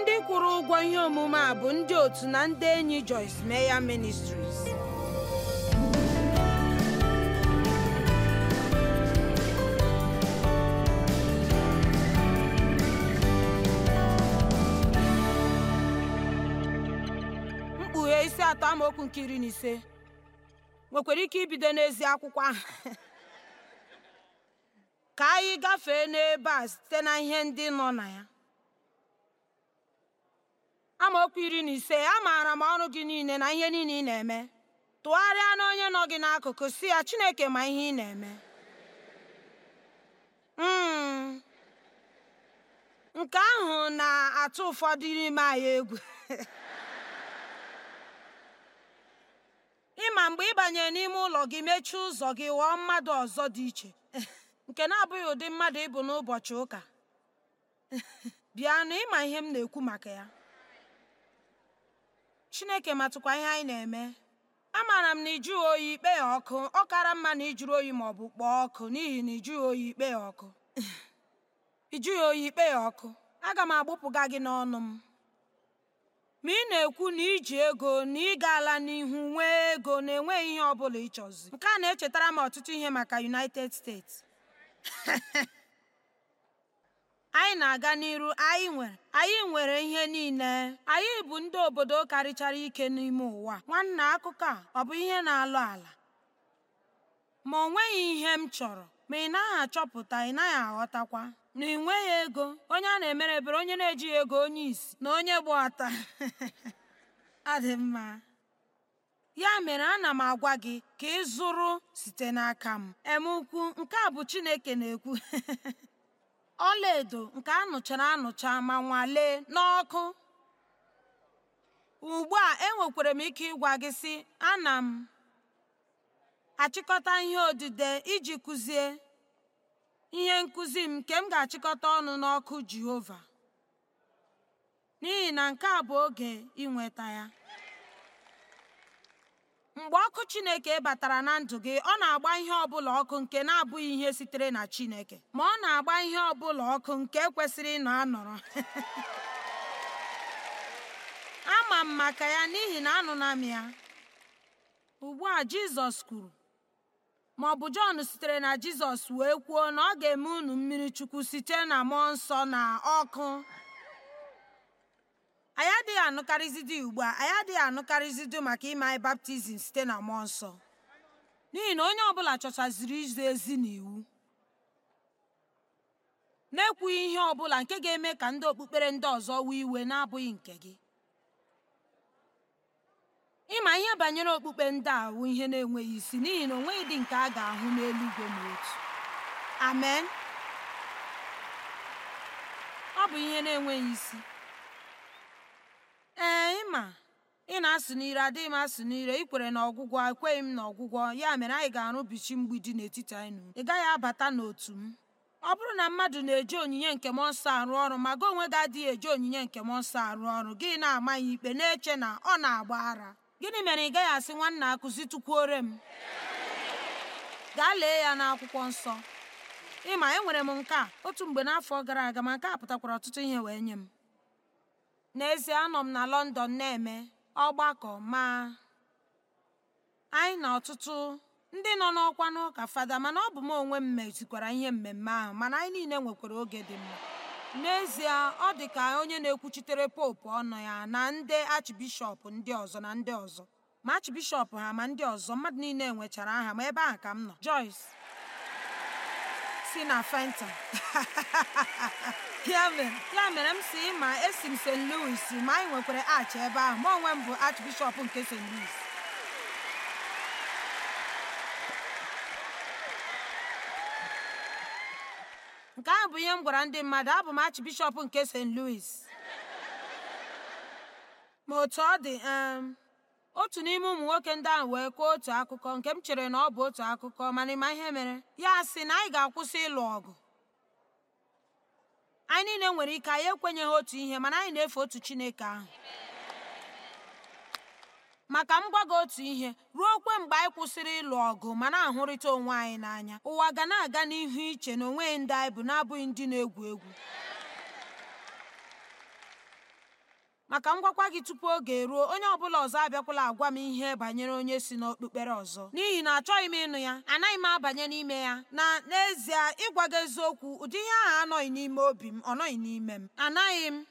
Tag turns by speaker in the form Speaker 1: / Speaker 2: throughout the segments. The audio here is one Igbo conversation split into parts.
Speaker 1: ndị kwụrụ ụgwọ ihe omume a bụ ndị otu na ndị enyi Joyce Meya Ministries mkpughe isi atọ amaokwu nke iri na ise nwekwara ike ibido n'ezi akwụkwọ ahụ ka anyị gafee n'ebe a site na ihe ndị nọ na ya okwu iri na ise amaara m ọrụ gị niile na ihe niile ị na-eme tụgharịa na onye nọ gị n'akụkụ si ya Chineke ma ihe ị na-eme hmm. nke ahụ na-atụ ụfọdụ n'ime anyị egwu ịma mgbe ị n'ime ụlọ gị mechie ụzọ gị ghọọ mmadụ ọzọ dị iche nke na-abụghị ụdị mmadụ ịbụ n'ụbọchị ụka bịa na ịma ihe m na-ekwu maka ya chineke matụkwa ihe anyị na-eme amaara m na ịjụghị oyi ikpe ya ọkụ ọ kara mma na ijuru oyi ma ọ bụ kpọọ ọkụ n'ihi na ịjụghị oyi ikpe ya ọkụ ịjụghị oyi ikpe ya ọkụ aga m agbụpụga gị n'ọnụ m ma ị na-ekwu na iji ego na ị gaala n'ihu nwee ego na-enweghị ihe ọ bụla ịchọzi nke a na-echetara m ọtụtụ ihe maka United States anyị na-aga n'iru anyị nwere anyị nwere ihe niile anyị bụ ndị obodo karịchara ike n'ime ụwa nwanna akụkọ a ọ bụ ihe na-alụ ala ma o nweghị ihe m chọrọ ma ị naghị achọpụta ị naghị aghọtakwa na ị nweghị ego onye a na-emere ebere onye na-ejighị ego onye isi na onye gba ọta adị mma ya mere ana m agwa gị ka ị zụrụ site n'aka m em ukwu nke a bụ Chineke na-ekwu edo nke anụchara anụcha ma nwalee n'ọkụ ugbu a enwekwara m ike ịgwa gị sị ana m achịkọta ihe odide iji kụzie ihe nkụzi m nke m ga-achịkọta ọnụ n'ọkụ Jehova n'ihi na nke a bụ oge inweta ya mgbe ọkụ chineke batara na ndụ gị ọ na-agba ihe ọbụla ọkụ nke na-abụghị ihe sitere na chineke ma ọ na-agba ihe ọbụla ọkụ nke kwesịrị ịnọ anọrọ ama m maka ya n'ihi na anụna m ya ugbu a jizọs kwuru ma ọ bụ jọn sitere na jizọs wee kwuo na ọ ga-eme unu mmiri chukwu site na mmụọ nsọ na ọkụ anyị adịghị anụkarịzidị ugbu a anyị adịghị anụkarịzidi maka ime anyị baptizim site na mmụọ nsọ n'ihi na onye ọbụla chọchaziri izi ezi na iwu na-ekwughị ihe ọbụla nke ga-eme ka ndị okpukpere ndị ọzọ wee iwe na-abụghị nke gị ịma ihe banyere okpukpe ndị a ihe na-enweghị isi n'ihi na onweghị dị nke a ga-ahụ n'eluigwe ma otu amen ọ bụ ihe na-enweghị isi ma ị na-asụ n'ire adịghị m asụ n'ire ị kwere n'ọgwụgwọ ekweghị m n'ọgwụgwọ ya mere anyị ga-arụbichi mgbidi n'etiti anyị na ị gaghị abata n'otu m ọ bụrụ na mmadụ na-eji onyinye nke m ọsọ arụ ọrụ ma gị onwe gị adịghị eji onyinye nke m nsọ arụ ọrụ gị na-ama ya ikpe na-eche na ọ na-agba ara gịnị mere ị gaghị asị nwanna akụzitụkwuore m gaa lee ya n'akwụkwọ nsọ ịma enwere m nke a otu mgbe n'afọ gara aga ma nke a pụtakwara ọtụtụ ihe wee nye m n'ezie anọ m na lọndọn na-eme ọgbakọ ma anyị na ọtụtụ ndị nọ n'ọkwa n'ụka fada mana ọ bụ m onwe m mezikwara ihe mmemme ahụ mana anyị niile nwekwara oge dị mma n'ezie ọ dị ka onye na-ekwuchitere popu ọnụ ya na ndị achibishọp ndị ọzọ na ndị ọzọ ma achibishọp ha ma ndị ọzọ mmadụ niile nwechara aha ma ebe ahụ ka m nọ Joyce si na fanta ya mere m si ma esi m st louis ma anyị nwekwara achị ebe ahụ ma onwe m bụ archbishop nke st louis nke ahụ bụ ihe m gwara ndị mmadụ abụ m archbishop nke st louis ma otu ọ dị um, otu n'ime ụmụ nwoke ndị ahụ wee kọọ otu akụkọ nke m chere na ọ bụ otu akụkọ mana ịma ihe mere ya sị na anyị ga-akwụsị ịlụ ọgụ anyị niile nwere ike anyị ekwenyeghị otu ihe mana anyị na-efe otu chineke ahụ maka m otu ihe ruo kwe mgbe anyị kwụsịrị ịlụ ọgụ ma na-ahụrịta onwe anyị n'anya ụwa ga na-aga n'ihu iche na onweghị ndị anyị bụ na-abụghị ndị na-egwu egwu maka ngwakwa gị tupu oge eruo onye ọbụla ọzọ abịakwala agwa m ihe banyere onye si n'okpukpere ọzọ n'ihi na achọghị m ịnụ ya anaghị m abanye n'ime ya na n'ezie ịgwa gị eziokwu ụdị ihe ahụ anọghị n'ime obi m ọ nọghị n'ime m anaghị m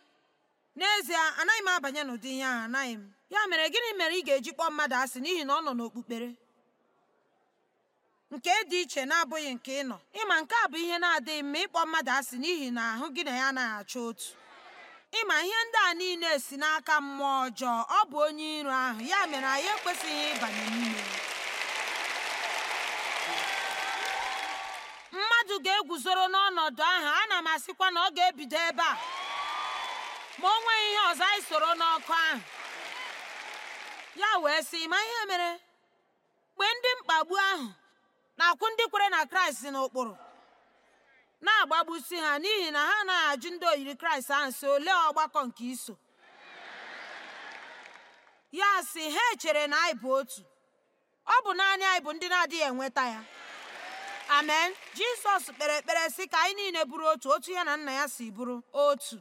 Speaker 1: n'ezie anaghị m abanye n'ụdị ihe ahụ anaghị m ya mere gịnị mere ị ga-eji kpọọ mmadụ asị n'ihi na ọ nọ n'okpukpere nke dị iche na-abụghị nke ị nọ ịma nke a bụ ihe na-adịghị mma ịkpọ mmadụ asị n'ihi na ahụ gị na ya anaghị achọ otu ịma ihe ndị a niile si n'aka mmụọ ọjọọ ọ bụ onye iro ahụ ya mere anyị ekwesịghị ịbanye n'ime mmadụ ga egwuzoro n'ọnọdụ ahụ ana m asịkwa na ọ ga-ebido ebe a ma o nweghị ihe ọzọ anyị soro n'ọkụ ahụ ya wee sị ma ihe mere mgbe ndị mkpagbu ahụ na-akwụ ndị kwere na kraịst n'ụkpụrụ na-agbagbusi ha n'ihi na ha na ajụ ndị oyiri kraịst ahụ si ole ọgbakọ nke iso ya si ha echere na anyị bụ otu ọ bụ naanị anyị bụ ndị na-adịghị enweta ya amen jisọs kpere ekpere sị ka anyị niile bụrụ otu otu ya na nna ya si bụrụ otu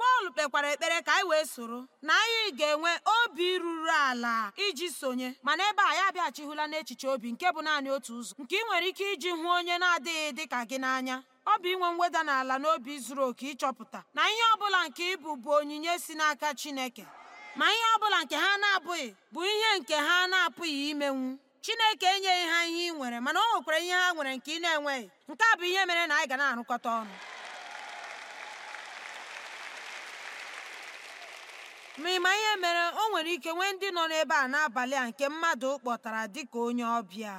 Speaker 1: Pọl kpekwara ekpere ka anyị wee soro na anyị ga-enwe obi ruru ala iji sonye mana ebe a ya abịaghachihụla n'echiche obi nke bụ naanị otu ụzọ nke ị nwere ike iji hụ onye na-adịghị dị ka gị n'anya ọ bụ inwe mweda n'ala n'obi zuru oke ịchọpụta na ihe ọ bụla nke ịbụ bụ onyinye si n'aka Chineke ma ihe ọ bụla nke ha na-abụghị bụ ihe nke ha na-apụghị imenwu Chineke enyeghị ha ihe ị nwere mana o nwekwara ihe ha nwere nke ị na-enweghị nke a bụ ihe mere na anyị ga na-arụkọta ọnụ ma ị ma ihe mere o nwere ike nwee ndị nọ n'ebe a n'abalị a nke mmadụ kpọtara dịka onye ọbịa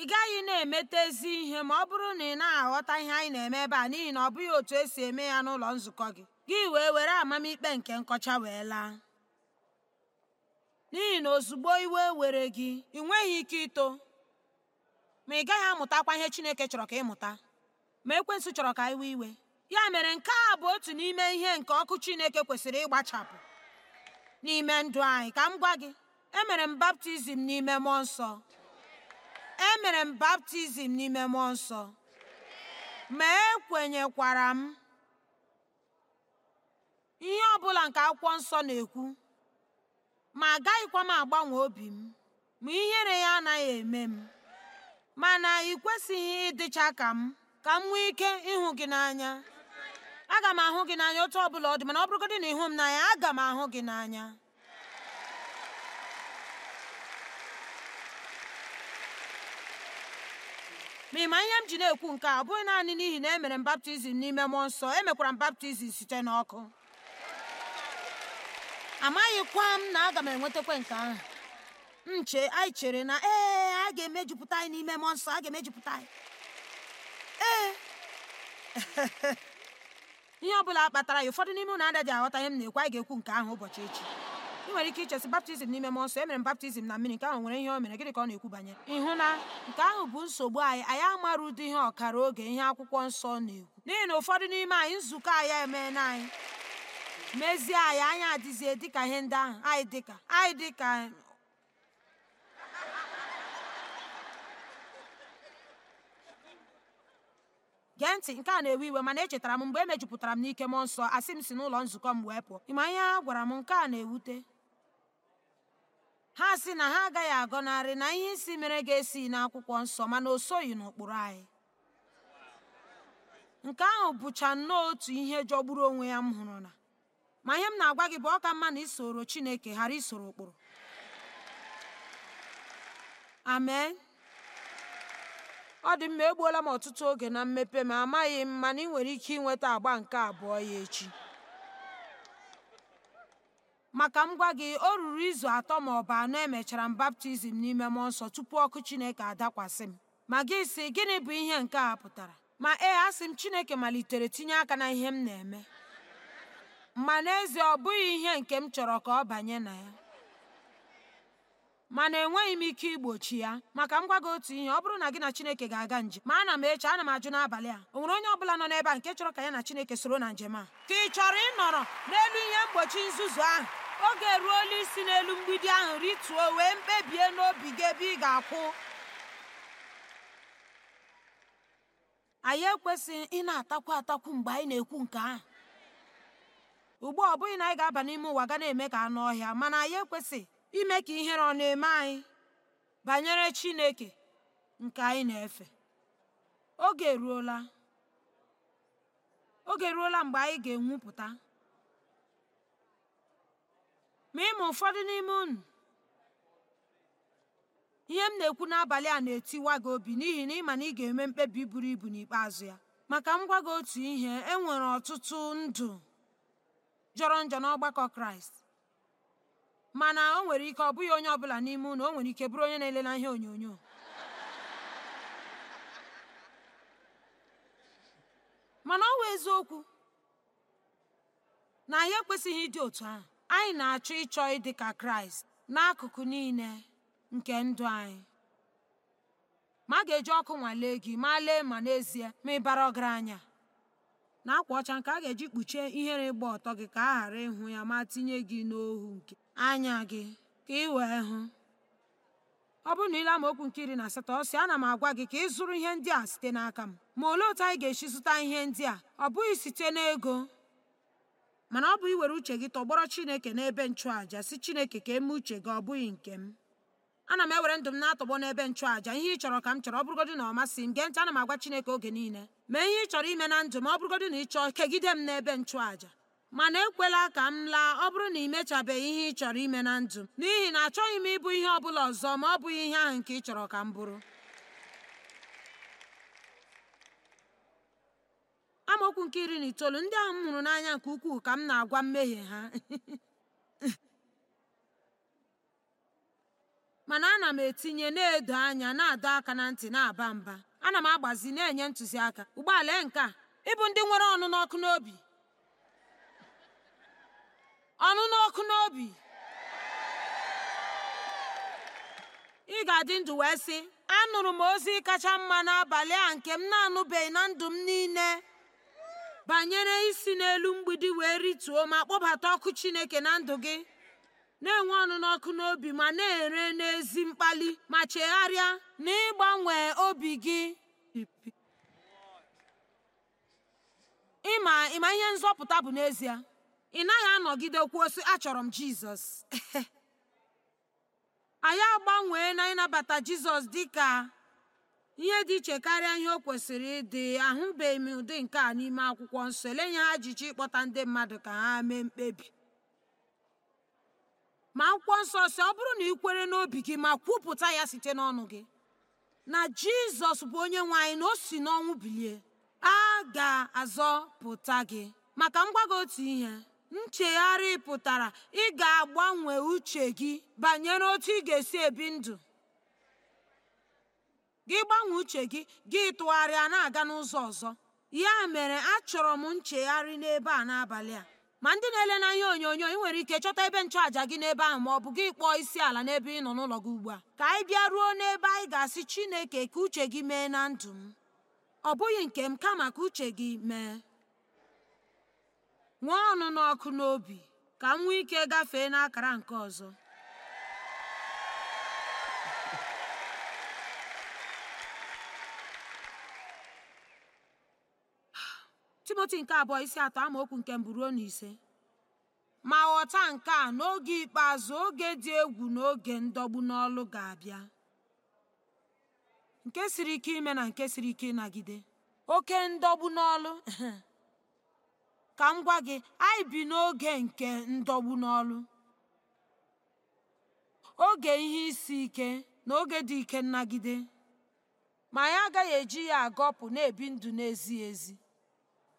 Speaker 1: ị gaghị na-emetezi ihe ma ọ bụrụ na ị na-aghọta ihe anyị na-eme ebe a n'ihi na ọ bụghị otu esi eme ya n'ụlọ nzukọ gị gị wee were amamikpe nke nkọcha wee laa n'ihi na ozugbo iwe were gị ị nweghị ike ito ma ị gaghị amụtakwa ihe Chineke chọrọ ka ị mụta ma Ekwensu chọrọ ka iwe iwe ya mere nke a bụ otu n'ime ihe nke ọkụ chineke kwesịrị ịgbachapụ n'ime ndụ anyị ka m gwa gị emere m baptizim n'ime mmụọ nsọ emere m baptizim n'ime mmụọ nsọ ma ekwenyekwara m ihe ọ bụla nke akwụkwọ nsọ na-ekwu ma agaghịkwa m agbanwe obi m ma ihere ya anaghị eme m mana ị kwesịghị ịdịcha ka m ka m nwee ike ịhụ gị n'anya aga m ahụ gị n'anya otu ọ bụla ọ dị mana ọ bụrụgodị na ịhụ m n'anya aga m ahụ gị n'anya ma ịma ihe m ji na-ekwu nke a bụghị naanị n'ihi na emere m baptizim n'ime mmụọ nsọ emekwara m baptizim site n'ọkụ amaghịkwa m na aga m enwetakwe nke ahụ nche anyị chere na ee a ga-emejupụta n'ime mmụọ nsọ a ga-emejupụta ee ihe ọ bụla kpatara ya ụfọdụ n'ime ụnụ anaghị aghọta ihe m na-ekwu anyị ga-ekwu nke ahụ ụbọchị echi ị nwere ike ichesi baptizim n'ime m nsọ emere m baptizim na mmiri nke ahụ nwere ihe o mere gịnị ka ọ na-ekwu banyere ịhụ na nke ahụ bụ nsogbu anyị anyị amara ụdị ihe ọkara oge ihe akwụkwọ nsọ na-ekwu n'ihi na ụfọdụ n'ime anyị nzukọ anyị emeela anyị mezie anyị anya adịzie dịka ihe ndị ahụ anyị dịka anyị dịka gee ntị nke a na-ewe iwe mana echetara m mgbe e emejupụtara m n'ike mmụọ nsọ asị m si n'ụlọ nzukọ m wee pụọ ịma ihe ha gwara m nke a na-ewute ha sị na ha agaghị agọnarị na ihe isi mere ga-esi n'akwụkwọ nsọ mana o soghị n'ụkpụrụ anyị nke ahụ bụcha nnọọ otu ihe jọgburu onwe ya m hụrụ na ma ihe m na-agwa gị bụ ọka mma na isoro Chineke ghara isoro ụkpụrụ amen ọ dị mma egbuola m ọtụtụ oge na mmepe ma amaghị m mana ị nwere ike ịnweta agba nke abụọ ya echi maka m gwa gị o ruru izu atọ ma ọ bụ anọ emechara m baptizim n'ime mmụọ nsọ tupu ọkụ chineke adakwasị m ma gị si gịnị bụ ihe nke a pụtara ma ee asị m chineke malitere tinye aka na ihe m na-eme ma n'ezie ọ bụghị ihe nke m chọrọ ka ọ banye na ya mana enweghị m ike igbochi ya maka m gwa gị otu ihe ọ bụrụ na gị na chineke ga-aga njem ma ana m eche ana m ajụ n'abalị a o nwere onye ọbụla nọ n'ebe a nke chọrọ ka ya na chineke soro na njem a ka ị chọrọ ịnọrọ n'elu ihe mgbochi nzuzu ahụ oge ruola isi n'elu mgbidi ahụ rituo wee mkpebie n'obi gị ebe ị ga-akwụ anyị ekwesịghị ị na-atakwu atakwu mgbe anyị na-ekwu nke ahụ ugbu a ọ bụghị na anyị ga-aba n'ime ụwa ga na-eme ka anụ ọhịa mana anyị ekwesịghị ime ka ihere ọ na-eme anyị banyere Chineke nke anyị na-efe oge eruola oge eruola mgbe anyị ga-enwupụta ma ịma ụfọdụ n'ime unu ihe m na-ekwu n'abalị a na-etiwa gị obi n'ihi na ịma na ị ga-eme mkpebi buru ibu n'ikpeazụ ya maka m gị otu ihe e ọtụtụ ndụ jọrọ njọ n'ọgbakọ Kraịst mana o nwere ike ọ bụghị onye ọbụla n'ime ụlọ o nwere ike bụrụ onye na-elela ihe onyonyo mana ọ wụ eziokwu na anyị ekwesịghị ịdị otu ahụ anyị na-achọ ịchọ ịdị ka kraịst n'akụkụ niile nke ndụ anyị ma a ga-eji ọkụ nwalee gị ma lee ma n'ezie ma ịbara ọgaranya na akwa ọcha nke a ga-eji kpuchie ihere ịgba ọtọ gị ka a ghara ịhụ ya ma tinye gị n'ohu nke anya gị ka ị wee hụ ọ bụrụ na ile amaokwu nke iri na asatọ ọ sị ana m agwa gị ka ị zụrụ ihe ndị a site n'aka m ma olee otu anyị ga-esi zụta ihe ndị a ọ bụghị site n'ego mana ọ bụ iwere uche gị tọgbọrọ chineke n'ebe nchụàja si chineke ka eme uche gị ọ bụghị nke m ana m ewere ndụ m na-atọgbọ n'ebe nchụàja ihe ị chọrọ ka m chọrọ ọ bụrụgodị na ọ masị m gee ntị ana m agwa chineke oge niile mee ihe ị chọrọ ime na ndụ m ọ bụrụgodị na ị chọọ kegide m n'ebe nchụàja mana ekwela ka m laa ọ bụrụ na ị mechabeghị ihe ị chọrọ ime na ndụ m n'ihi na achọghị m ịbụ ihe ọ bụla ọzọ ma ọ bụghị ihe ahụ nke ị chọrọ ka m bụrụ amaokwu nke iri na itoolu ndị ahụ m hụrụ n'anya nke ukwuu ka m na-agwa mmehie ha mana ana m etinye na-edo anya na-adọ aka na ntị na-aba mba ana m agbazi na-enye ntụziaka ụgbọala nke a ịbụ ndị nwere ọnụ n'ọkụ n'obi ọnụ n'obi ị ga-adị ndụ wee sị anụrụ m ozi kacha mma n'abalị a nke m na-anụbeghị na ndụ m niile banyere isi n'elu mgbidi wee rituo ma kpọbata ọkụ Chineke na ndụ gị na-enwe ọnụ n'obi ma na-ere n'ezi mkpali ma chegharịa na ịgbanwe obi gị ịma ịma ihe nzọpụta bụ n'ezie ị naghị anọgide kwuo sị achọrọ m jizọs anyị agbanwee na ịnabata jizọs dị ka ihe dị iche karịa ihe o kwesịrị ịdị ahụbeghị m ụdị nke a n'ime akwụkwọ nsọ elenye ha jichi ịkpọta ndị mmadụ ka ha mee mkpebi ma akwụkwọ nsọ si ọ bụrụ na ị kwere n'obi gị ma kwupụta ya site n'ọnụ gị na jizọs bụ onye nwe anyị na o si n'ọnwụ bilie a ga-azọpụta gị maka mgbago otu ihe Nchegharị pụtara ị ga-agbanwe uche gị banyere otú ị ga-esi ebi ndụ gị gbanwee uche gị gị tụgharịa na-aga n'ụzọ ọzọ ya mere achọrọ m nchegharị n'ebe a n'abalị a ma ndị na-ele n'anya onyonyo ị nwere ike chọta ebe nchụàja gị n'ebe ahụ ma ọ bụ gị kpọọ isi ala n'ebe ị nọ n'ụlọ gị ugbu a ka anyị bịa ruo n'ebe anyị ga-asị Chineke ka uche gị mee na ndụ m ọ bụghị nke m kama ka uche gị mee nwee ọnụnọ ọkụ n'obi ka m nwee ike gafee n'akara nke ọzọ timoti nke abụọ isi atọ amaokwu nke mburu na ise ma ghọta nke a n'oge ikpeazụ oge dị egwu na oge ndọgbu n'ọlụ ga-abịa nke siri ike ime na nke siri ike ịnagide oke ndọgbu n'ọlụ ka m gwa gị anyị bi n'oge nke ndọgbu n'ọlụ oge ihe isi ike na oge dị ike nnagide ma anyị agaghị eji ya agọpụ na-ebi ndụ na-ezighị ezi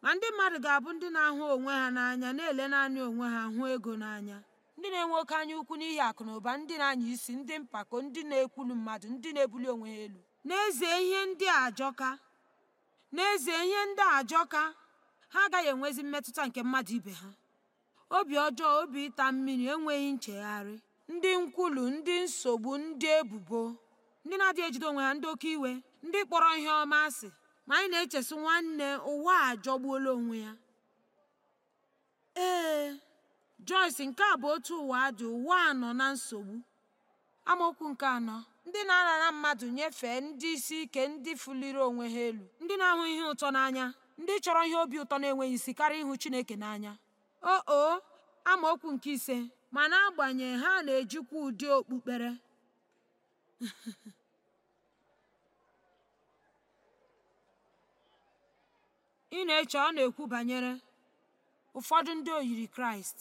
Speaker 1: ma ndị mmadụ ga-abụ ndị na-ahụ onwe ha n'anya na-ele naanị onwe ha hụ ego n'anya ndị na-enwe oke anya ukwu n'ihi akụ na ụba ndị na-anya isi ndị mpako ndị na-ekwulu mmadụ ndị na-ebuli onwe ha elu n'ezie ihe ndị a ajọka n'ezie ihe ndị ajọka ha agaghị enwezi mmetụta nke mmadụ ibe ha obi ọjọọ obi ịta mmiri enweghị nchegharị ndị nkwulu ndị nsogbu ndị ebubo ndị na-adịghị ejide onwe ha ndị oke iwe ndị kpọrọ ihe ọma asị ma anyị na-echesi nwanne ụwa ajọgbuola onwe ya ee Joyce nke a bụ otu ụwa dị ụwa nọ na nsogbu amaokwu nke anọ ndị na-arara mmadụ nyefee ndị isi ike ndị fuliri onwe ha elu ndị na-ahụ ihe ụtọ n'anya ndị chọrọ ihe obi ụtọ na-enweghị isi karịa ịhụ Chineke n'anya o o okwu nke ise ma n'agbanyeghị ha na-ejikwa ụdị okpukpere ị na-eche ọ na-ekwu banyere ụfọdụ ndị oyiri Kraịst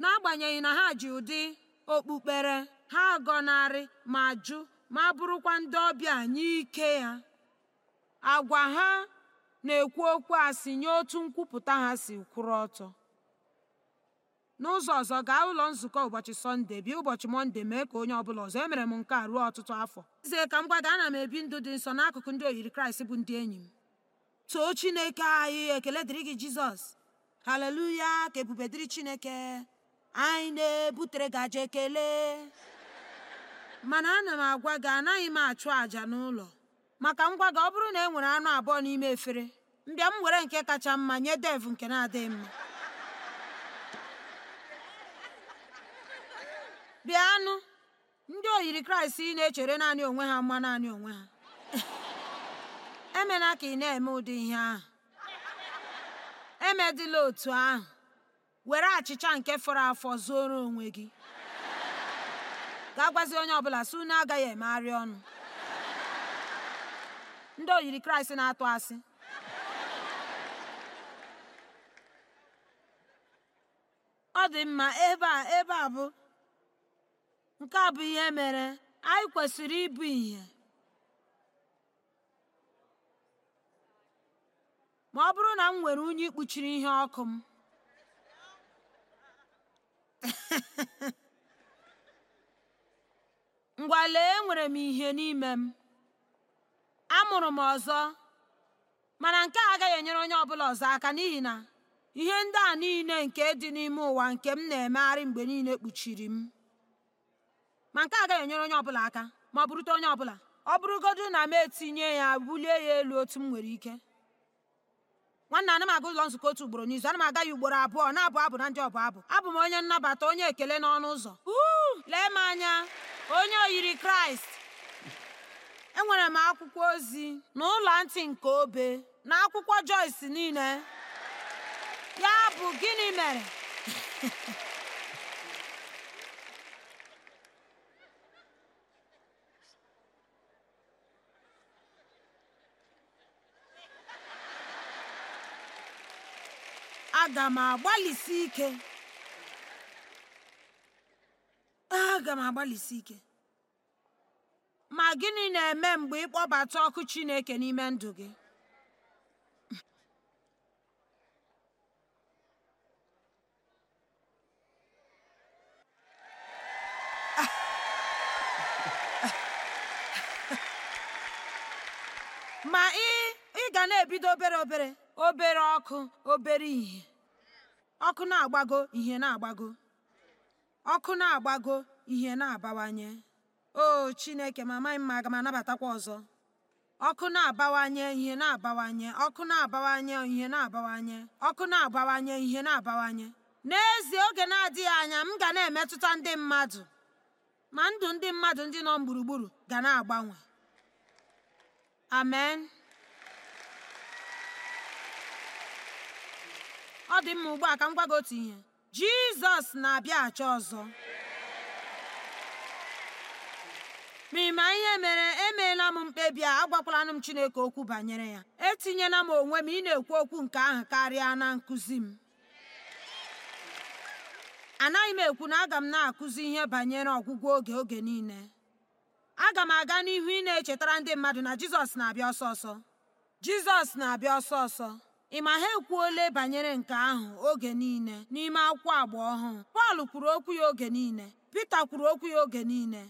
Speaker 1: n'agbanyeghị na ha ji ụdị okpukpere ha gọnarị ma jụ ma bụrụkwa ndị ọbịa nye ike ya agwa ha na-ekwu okwu asị nye otu nkwupụta ha si kwụrụ ọtọ n'ụzọ ọzọ gaa ụlọ nzukọ ụbọchị sọnde bịa ụbọchị mọnde mee ka onye ọbụla ọzọ emere m nke a ruo ọtụtụ afọ Ize ka m gwa gị ana m ebi ndụ dị nsọ n'akụkụ ndị oyiri kraịst bụ ndị enyi m too chineke anyị ekele dịrị gị jizọs haleluya ka ebube dịrị chineke anyị na-ebutere gaje aja ekele mana ana m agwa gị anaghị m achụ àjà n'ụlọ maka ngwa gị ọ bụrụ na e nwere anụ abụọ n'ime efere mbịa m were nke kacha mma nye dev nke na-adịghị mma bịa anụ ndị oyiri kraịst ị na-echere naanị onwe ha mma naanị onwe ha emela ka ị na-eme ụdị ihe ahụ emedịla otu ahụ were achịcha nke fọrọ afọ zuoro onwe gị ga gwazi onye ọbụla si na agaghị emegharị ọnụ ndị oyiri kraịst na-atụ asị ọ dị mma ebe a ebe a bụ nke a bụ ihe mere anyị kwesịrị ịbụ ihe ma ọ bụrụ na m nwere unyi ikpuchiri ihe ọkụ m ngwa lee enwere m ihe n'ime m amụrụ m ọzọ mana nke a agaghị enyere onye ọbụla ọzọ aka n'ihi na ihe ndị a niile nke dị n'ime ụwa nke m na-emegharị mgbe niile kpuchiri m ma nke agaghị enyere onye ọbụla aka ma ọ bụrụta onye ọbụla ọ bụrụgodu na m etinye ya bulie ya elu otu m nwere ike nwanne anam m aga ụlọ nzukọ otu ugboro n'izu Anam m ugboro abụọ na-abụ abụ na ndị ọbụ abụ abụ m onye nnabata onye ekele n'ọnụ ụzọ lee m anya onye oyiri kraịst enwere m akwụkwọ ozi na ụlọ ntị nke obe na akwụkwọ Joyce niile ya bụ gịnị mere aga m agbalịsi ike aga m ike ma gịnị na-eme mgbe ịkpọbata ọkụ Chineke n'ime ndụ gị ma ị ga na-ebido obere obere obere ọkụ obere ihe ọkụ na-agbago ihe na-agbago ọkụ na-agbago ihe na-abawanye o chineke ma amaghị m aga m anabatakwa ọzọ ọkụ na-abawanye ihe na-abawanye ọkụ na-abawanye ihe na-abawanye ọkụ na-abawanye ihe na-abawanye n'ezie oge na-adịghị anya m ga na-emetụta ndị mmadụ ma ndụ ndị mmadụ ndị nọ gburugburu ga na-agbanwe amen ọ dị mma ugbu a ka m gwa gị otu ihe jizọs na-abịa ọzọ ma ma ihe mere emeela m mkpebi a agwakwala m Chineke okwu banyere ya etinyela m onwe m ị na-ekwu okwu nke ahụ karịa na nkụzi m anaghị m ekwu na aga m na-akụzi ihe banyere ọgwụgwọ oge oge niile aga m aga n'ihu ị na-echetara ndị mmadụ na Jizọs na-abịa ọsọ ọsọ Jizọs na-abịa ọsọ ọsọ ị ma ha ekwuole banyere nke ahụ oge niile n'ime akwụkwọ agba ọhụụ Pọl kwuru okwu ya oge niile Pita kwuru okwu ya oge niile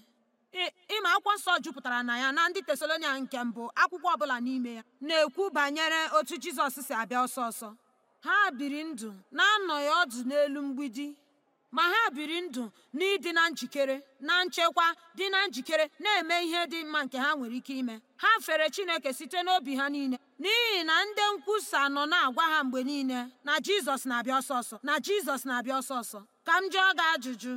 Speaker 1: ịma akwụkwọ nsọ jupụtara na ya na ndị tesalonia nke mbụ akwụkwọ ọbụla n'ime ya na-ekwu banyere otu jizọs si abịa ọsọ ọsọ ha biri ndụ na-anọghị ọdụ n'elu mgbidi ma ha biri ndụ n'ịdị na njikere na nchekwa dị na njikere na-eme ihe dị mma nke ha nwere ike ime ha fere chineke site n'obi ha niile n'ihi na ndị nkwusa nọ na-agwa ha mgbe niile na jizọs na-abịa ọsọ ọsọ na jizọs na-abịa ọsọ ọsọ ka m jụọ gị ajụjụ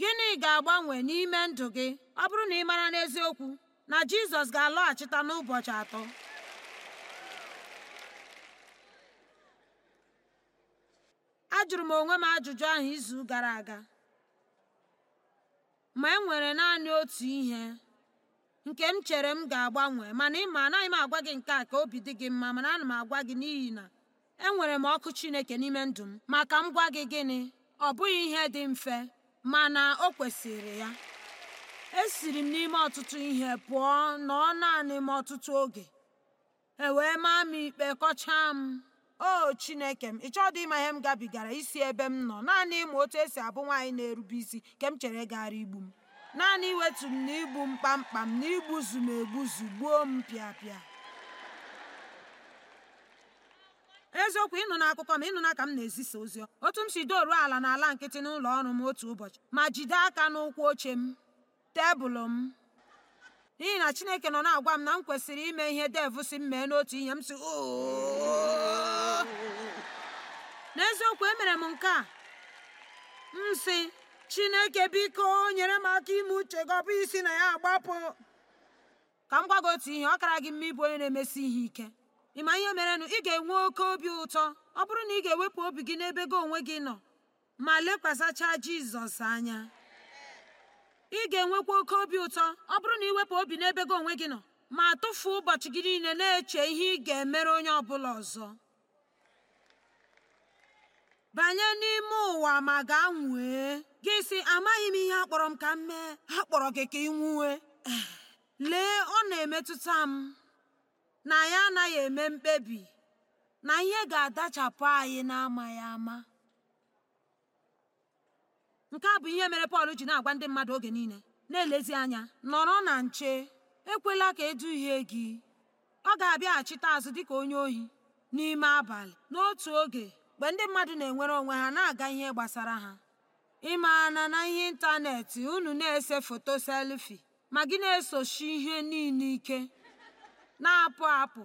Speaker 1: gịnị ga-agbanwe n'ime ndụ gị ọ bụrụ na ị mara n'eziokwu na jizọs ga-alọghachita n'ụbọchị atọ ajụrụ m onwe m ajụjụ ahụ izu gara aga ma e nwere naanị otu ihe nke m chere m ga-agbanwe mana ịma anaghị m agwa gị nke a ka obi dị gị mma mana ana m agwa gị n'ihi na enwere m ọkụ Chineke n'ime ndụ m maka m gwa gị gịnị ọ bụghị ihe dị mfe mana o kwesịrị ya. esiri m n'ime ọtụtụ ihe pụọ nọọ naanị m ọtụtụ oge e wee maa m ikpe kọchaa m o chineke m ị chọọ ihe m gabigara isi ebe m nọ naanị ịma otu esi abụ nwaanyị na-erube isi ka m chere gara igbu m naanị iwetu m na igbu m kpamkpam na igbuzu m egbuzu gbuo m pịapịa eziokwu ịnụ akụkọ ma ịnụ na ka m na-ezisa ozi otu m si doruo ala ala nkịtị n'ụlọ ọrụ m otu ụbọchị ma jide aka n'ụkwụ oche m tebụl m n'ihi na chineke nọ na-agwa m na m kwesịrị ime ihe dev si m mee n'otu ihe m si n'eziokwu emere m nke a m si chineke biko nyere m aka ime uche gị ọ bụ isi na ya agbapụ ka m gwa gị otu ihe ọ kara gị mma ịbụ onye na-emesi ihe ike ị ma ihe merenụ ị ga-enwe oke obi ụtọ ọ bụrụ na ị ga-ewepụ obi gị n'ebe gị onwe gị nọ ma lekwasachaa jizọs anya ị ga-enwekwa oke obi ụtọ ọ bụrụ na iwepụ obi n'ebe gị onwe gị nọ ma tụfuo ụbọchị gị niile na-eche ihe ị ga-emere onye ọ bụla ọzọ banye n'ime ụwa ma gaa nwee gị sị amaghị m ihe akpọrọ m ka m mee ha kpọrọ gị ka ị nwuwe lee ọ na-emetụta m na anyị anaghị eme mkpebi na ihe ga-adachapụ anyị na-amaghị ama nke a bụ ihe mere Pọl ji na-agwa ndị mmadụ oge niile na-elezi anya nọrọ na nche ekwela ka eduhie gị ọ ga-abịaghachite azụ dịka onye ohi n'ime abalị n'otu oge mgbe ndị mmadụ na-enwere onwe ha na-aga ihe gbasara ha ịmaana na ihe ịntanetị unu na-ese foto selfi ma gị na-esochi ihe niile ike na-apụ apụ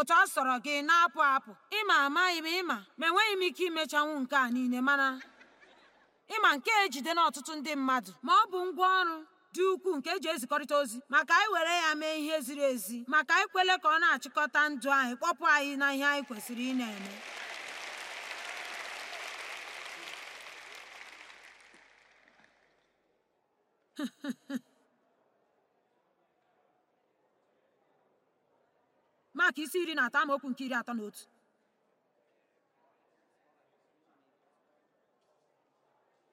Speaker 1: otu ọ sọrọ gị na-apụ apụ ịma amaghị m ịma ma enweghị m ike imechanwu nke a niile mana ịma nke ejide na ọtụtụ ndị mmadụ ma ọ bụ ngwaọrụ dị ukwuu nke eji ezikọrịta ozi maka anyị were ya mee ihe ziri ezi maka anyị kwele ka ọ na-achịkọta ndụ anyị kpọpụ anyị na ihe anyị kwesịrị ị na-eme Maka isi iri na atọ amaokwu nke iri atọ na otu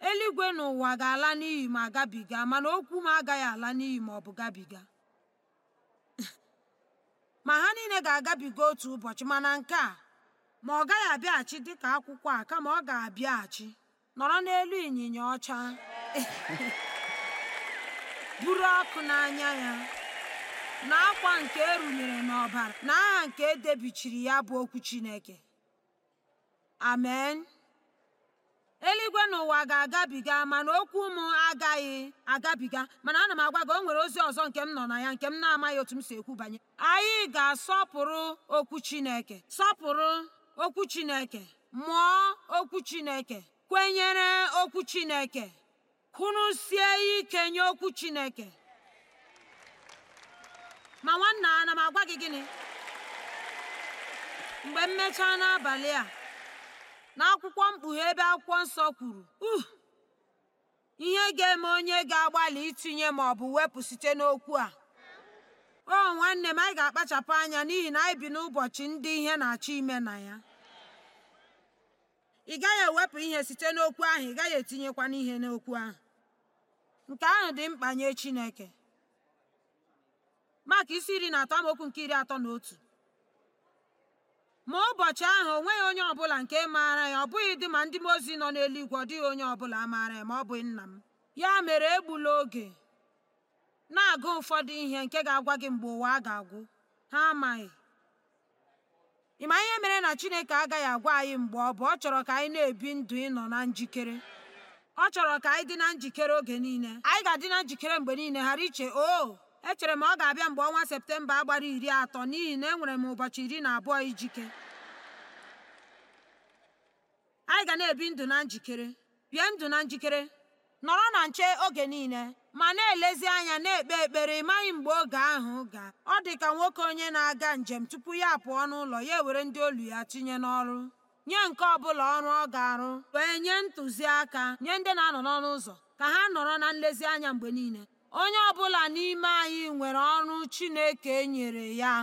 Speaker 1: eluigwe ụwa ga-ala n'ihi ma gabiga mana okwu m agaghị ala n'ihi ma ọ bụ gabiga ma ha niile ga-agabiga otu ụbọchị mana nke a ma ọ gaghị abịaghachi dịka akwụkwọ a kama ọ ga-abịaghachi nọrọ n'elu ịnyịnya ọcha buru ọkụ n'anya ya na akwa nke e runyere n'ọbara na aha nke e debichiri ya bụ okwu Chineke amen eluigwe n'ụwa ga-agabiga mana okwu m agaghị agabiga mana ana m agwa gị o nwere ozi ọzọ nke m nọ na ya nke m na-amaghị otu m si ekwu banye anyị ga-asọpụrụ okwu Chineke sọpụrụ okwu Chineke mụọ okwu Chineke kwenyere okwu Chineke kụrụsie ike nye okwu Chineke ma nwanna ana m agwa gị gịnị mgbe m mechaa n'abalị a n'akwụkwọ mkpughe ebe akwụkwọ nsọ kwuru ihe ga-eme onye ga-agbalị itinye ma ọ bụ wepụ site n'okwu a o nwanne m anyị ga-akpachapụ anya n'ihi na anyị bi n'ụbọchị ndị ihe na-achọ ime na ya ị gaghị ewepụ ihe site n'okwu ahụ ị gaghị etinyekwa n'ihe n'okwu ahụ nke ahụ dị mkpa nye Chineke maka isi iri na atọ amaokwu nke iri atọ na otu ma ụbọchị ahụ o nweghị onye ọbụla nke maara ya ọ bụghị dị ma ndị m ozi nọ n'eluigwe ọ dịghị onye ọbụla maara ya ma ọ bụghị nna m ya mere egbula oge na-agụ ụfọdụ ihe nke ga-agwa gị mgbe ụwa a ga-agwụ ha amaghị ị ma ihe mere na Chineke agaghị agwa anyị mgbe ọ bụ ọ chọrọ ka anyị na-ebi ndụ ịnọ na njikere ọ chọrọ ka anyị dị na njikere oge niile anyị ga-adị na njikere mgbe niile ghara iche o oh, echere m ọ ga-abịa mgbe ọnwa septemba agbara iri atọ n'ihi na enwere m ụbọchị iri na abụọ ijike anyị ga na-ebi ndụ na njikere bie ndụ na njikere nọrọ na nche oge niile ma na-elezi anya na-ekpe ekpere ịmaghị mgbe oge ahụ ga ọ dị ka nwoke onye na-aga njem tupu ya pụọ n'ụlọ ya ewere ndị olu ya tinye n'ọrụ nye nke ọbụla ọrụ ọ ga-arụ wee nye ntụziaka nye ndị na-anọ n'ọnụ ụzọ ka ha nọrọ na nlezianya mgbe niile onye ọbụla n'ime anyị nwere ọrụ chineke nyere ya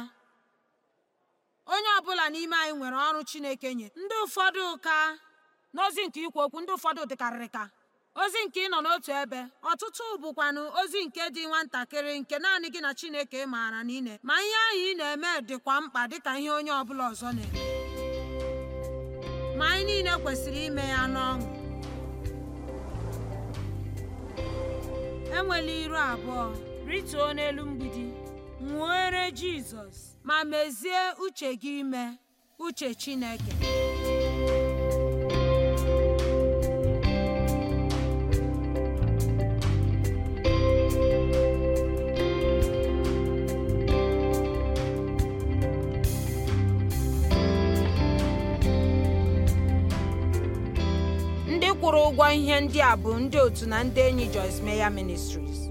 Speaker 1: onye ọbụla n'ime anyị nwere ọrụ chineke nye ndị ụfọdụ ka n'ozi nke ikwu okwu ndị ụfọdụ dịkarịrị ka ozi nke ịnọ n'otu ebe ọtụtụ bụkwanụ ozi nke dị nwatakịrị nke naanị gị na chineke maara na ine ma ihe ahụ ị na-eme dịkwa mkpa dịka ihe onye ọbụla ọzọ na-eme ma anyị niile kwesịrị ime ya n'ọṅụ enwela iru abụọ rituo n'elu mgbidi nwere Jizọs ma mezie uche gị ime uche Chineke ụgwọ ihe ndị a bụ ndị otu na ndị enyi Joyce Meyer Ministries